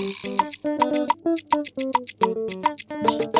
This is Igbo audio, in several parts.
Thank you.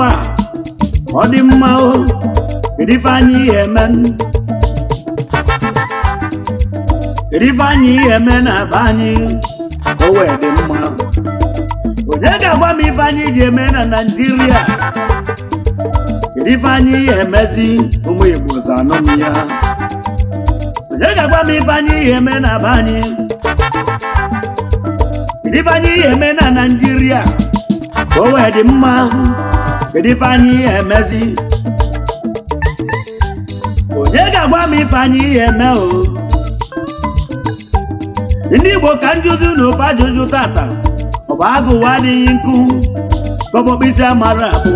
nwa ọ dị mma o kedu anyị ihe eme kedu ife anyị ihe men na be anyị o wee dị mma onye ga-agwa m ife anyị ji eme na naijiria kedu anyị ihe emezi ụmụ igbo zanụ m ya onye ga-agwa m ife anyị ihe eme na be anyị kedu anyị ihe eme na naijiria o wee dị mma kedu ifeanyị emezi onye ga-agwa m ife ihe eme o ndị Igbo ka njụzi na ofe ajụjụ tata ọ bụ agụwa adịghị nkụ kpọkpọkpịsị amara abụ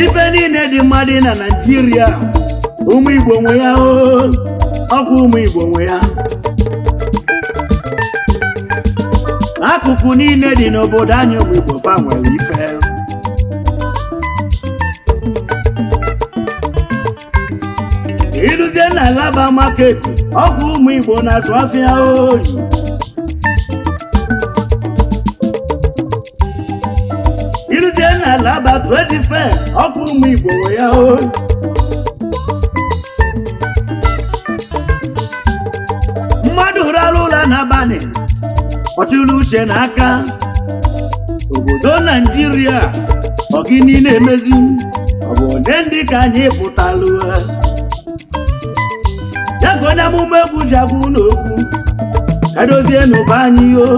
ife niile dị mmadụ na Naịjirịa ụmụ Igbo nwe ya o ọkwa ụmụ Igbo nwe ya akụkụ niile dị n'obodo anyị bụ Igbo fa nwere ife iruzie na laba maketi ọgwụ ụmụ Igbo na-azụ afịa oyi iruzie na laba 25 ọgwụ ụmụ Igbo nwere ya oyi mmadụ rụrụ ụlọ n'abalị ọchịlụ uche n'aka obodo naijiria ọgị niile emezi ọ bụ onye ndị ka anyị pụtalụ ya ka onye amụma egwu ji agwụ n'okwu edozie n'ụba anyị o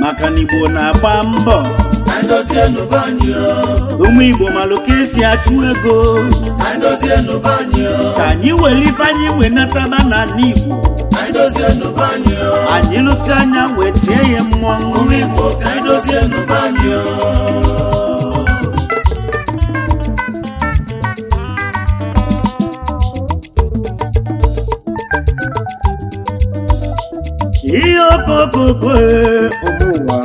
maka na igbo na-agba mbọ ụmụ igbo malụ esi achụ ego ka anyị were anyị wee nataba n'ala igbo anyị anyanwụ eti wee tie ya mmọnwụ Igbo ka anyị dozie n'ụba gbogbo ihe okokoko e, ụmụnwa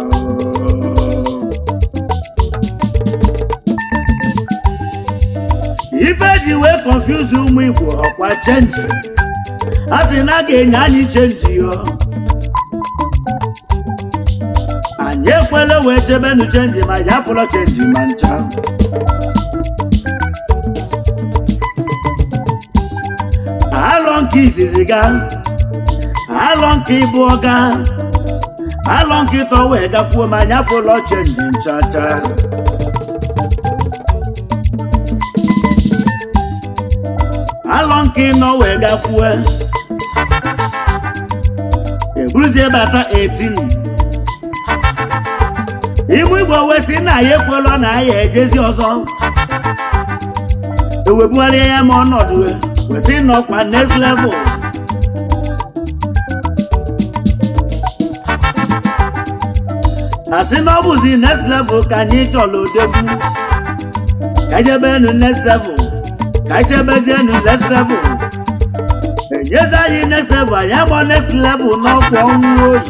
ife ji wee kọnfuzi ụmụ ikwu ọkwa chenji asị na a ga-enye anyị chenji ọ anyị ekwela wee chebenu chenji ma ya fụlọ chenji ma ncha alọ nke izizi ga alọ nke ịbụ ga alọ nke ịtọ wee gakwuo ma anyị afụlọ chenji nchacha alọ nke ịnọ wee gakwuo bụrụzie bata 18 ibu igbo wee si na ya ekwela na aya ejezi ọzọ ewebugharịa ya ma ọnọdụ wesị n'ọkwa next level asị na ọ bụzi next level ka anyị chọlụ debu. ka enu next level ka enu next level Yes, I in next level. I am on next level, not one road.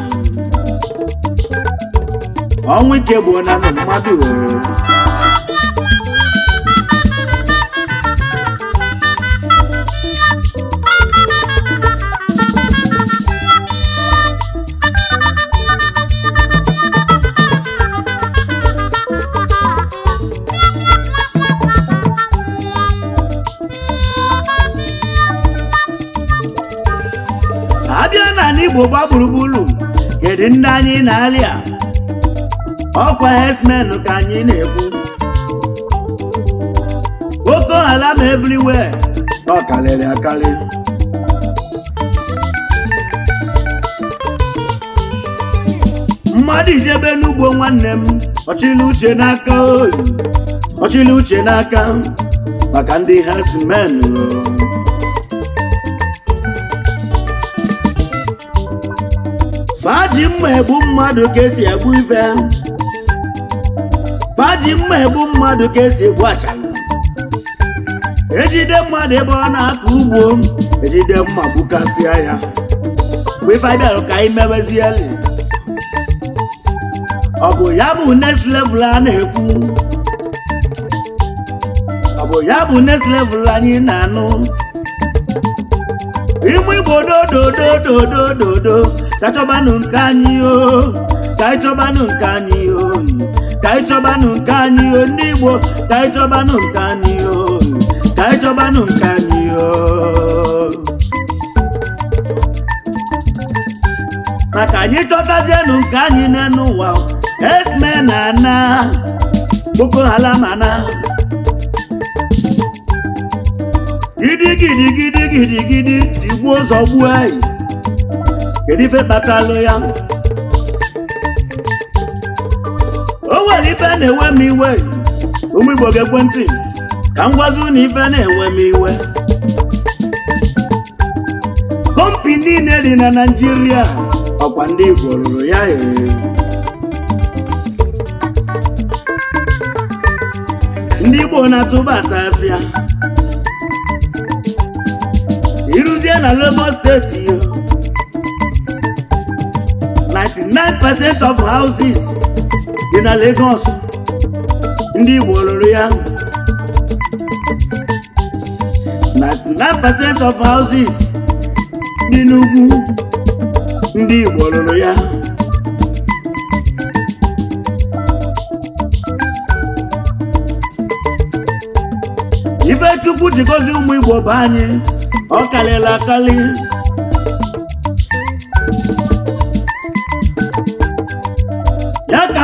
On we keep one and Igbo gba gburugburu kedu ndị anyị na-alịa ọkwa herdsmen ka anyị na-ekwu Boko alam everywhere ọ akarị mmadụ ijebe n'ugbo nwanne m ọchịla uche n'aka oyi uche n'aka maka ndị herdsmen faji mma egbu mmadụ ka esi egbu ife faji mma egbu mmadụ ka esi egbu achala ejide mmadụ ebe ọ na-akọ ugbo ejide mma gbukasịa ya mgbe ife bịara ka anyị mewezieli ọ bụ ya bụ next level a na-ekwu ọ bụ ya bụ next level anyị na-anụ ime igbo dododododododo ka ịchọbanụ nke anyị o ka ịchọbanụ nke anyị o ka ịchọbanụ nke anyị o ndị Igbo ka ịchọbanụ nke anyị o ka ịchọbanụ nke anyị o maka anyị chọtazienụ nke anyị n'elu ụwa esme na ana Boko Haram ana gidi gidi tigbuo ụzọ gbuo anyị kedu ife kpatalụ ya o nwere ife na-ewe m iwe ụmụ Igbo ga-ekwentị ka m gwazi unu ife na-ewe m iwe kọmpi niile dị na Naijiria ọkwa ndị Igbo rụrụ ya ndị Igbo na-atụbata afịa ịrụzie na Lagos steeti ya. 99% of houses dị na Lagos ndị Igbo lụrụ ya 99% of houses dị n'ugwu ndị Igbo lụrụ ya Ifechukwu ji gozi ụmụ Igbo bụ anyị ọ karịrị akarị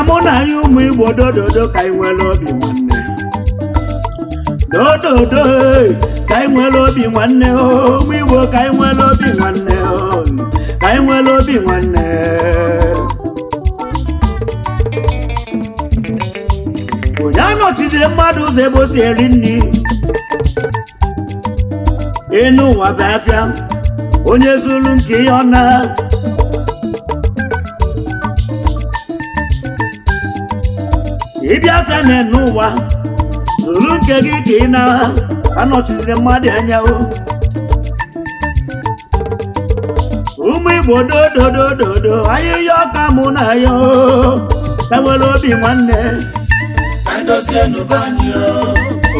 mụ na anyị ụmụ igbo dododo ka anyị nwere obi nwanne dododo ka anyị nwere obi nwanne ụmụ igbo ka anyị nwere obi nwanne ka anyị nwere obi nwanne onye anọchizire mmadụ ụzọ ebe eri nri ịnụ ụwa Biafra onye zuru nke ihe ọ na ịbịa na n'ụwa, ụwa ruru nke gị ka ị na anọchiziri mmadụ anya o ụmụ igbo dododododo ahịhịa ọka mụ na ya enwere obi nwanne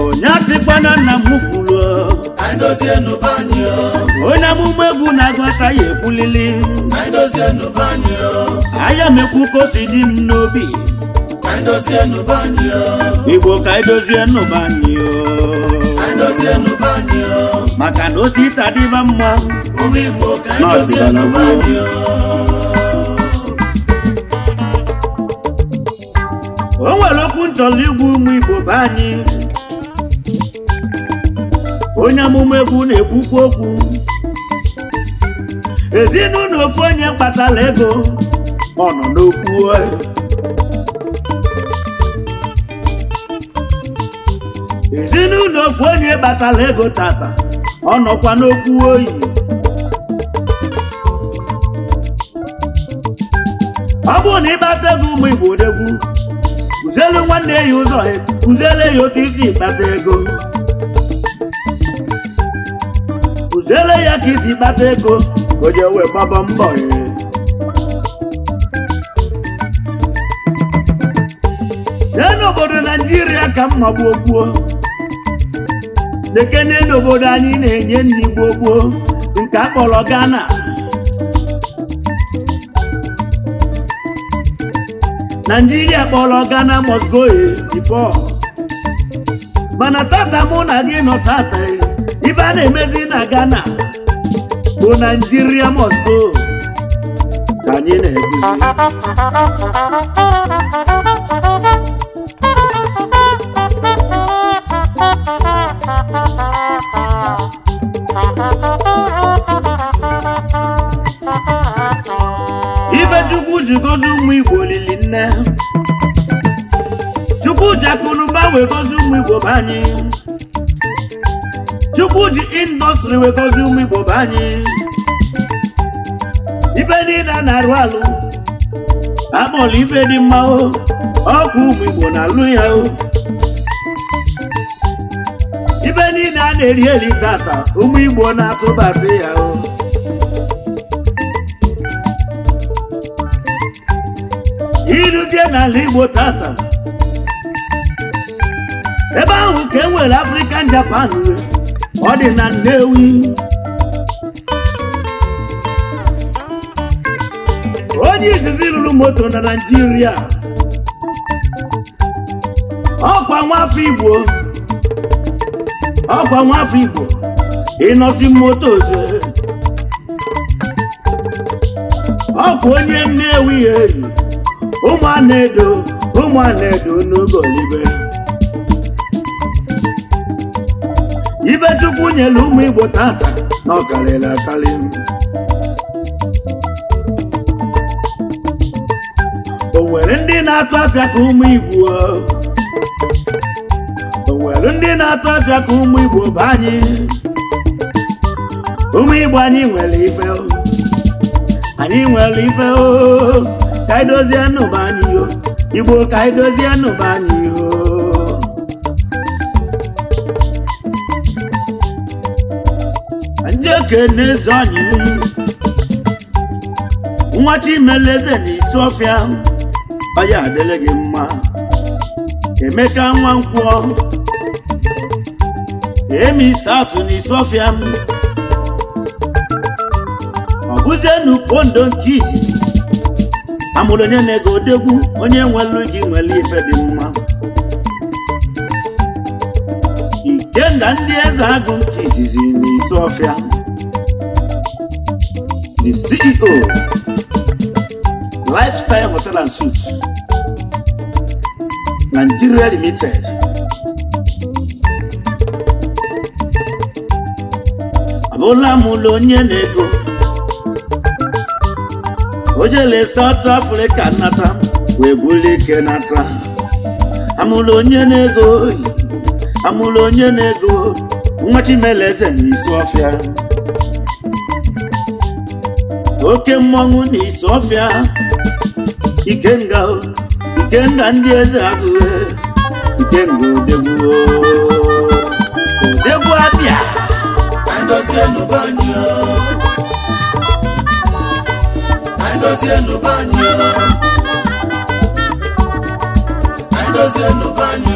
onye asịkwana nna m kwuru onye amụma egwu na-agụta ya ekwulili anya m ekwu ka o si dị m n'obi igbo ka edozie nụba anyị o maka na ose ịta dịba mma na o nwere okwu nchọrọ igwu ụmụ igbo be anyị onye amụma egwu na-ekwukwu okwu ezinụlọ ofu onye kpatara ego ọ nọ n'okwu onye batala ego tata ọ nọkwa n'okwu oyi ọ bụrụ na ịbata ego ụmụ igbo odegwu kụzielu nwanne ya ụzọ kụziele ya otu isi ịkpata ego kụziele ya ka isi kpata ego onye je wee gbaba mbọ ya jee n'obodo naijiria ka mma gbuo gbuo na n'obodo anyị na-enye nna igbo gboo nke akpọrọ Ghana naijiria kpọrọ Ghana must go eh, before mana tata mụ na gị nọ tata eh, ife a na-emezi na Ghana bụ naijiria must go ka anyị na-eguzi wee gọzie ụmụ be anyị chukwu ji indọstrị wee gọzie ụmụ igbo be anyị ife niile a na-arụ alụ akpọrọ ife dị mma ọkụ ụmụ na-alụ ya ife niile a na-eri eri tata ụmụ igbo na-atụbatị ya iruzie n'ala igbo tata ebe ahụ ka e nwere African Japan ọ dị na Nnewi onye izizi lụrụ moto na Naịjirịa ọkwa nwafọ Igbo ọkwa nwafọ Igbo ịnọsi moto ose ọkwa onye Nnewi eyi ụmụ ana edo ụmụ ana edo n'oge olibe Ife chukwu nyere ụmụ igbo tata na ọ o nwere ndị na-atụ afịa ka ụmụ igbo o nwere ndị na-atụ afịa ka ụmụ igbo bụ anyị ụmụ igbo anyị nwere ife anyị nwere ife o ka anyị dozie nụba anyị igbo ka anyị dozie nụba anyị o ndị ekene eze anyị nwa chimeleze na isiofia aya adịla gị mma emeka nwa nkwọ emi satụ na isiofia ọ bụzie n'upondo nke izizi amụrụ onye na-ego odegwu onye nwelu gị nwere ife dị mma ikenga ndị eze agụ nke izizi na the CEO, Lifestyle Hotel and suit Nigeria Limited. Abụla m ụlọ onye na-ego o jele South Africa nata wee bụrụ ike nata amụla onye na-ego amụla onye na-ego n'isi ọfịa oke mmọnwụ na isi ọfịa ikenga ikenga ndị eze agụghị ikenga odegbuo odegbu abịa andozienu banyo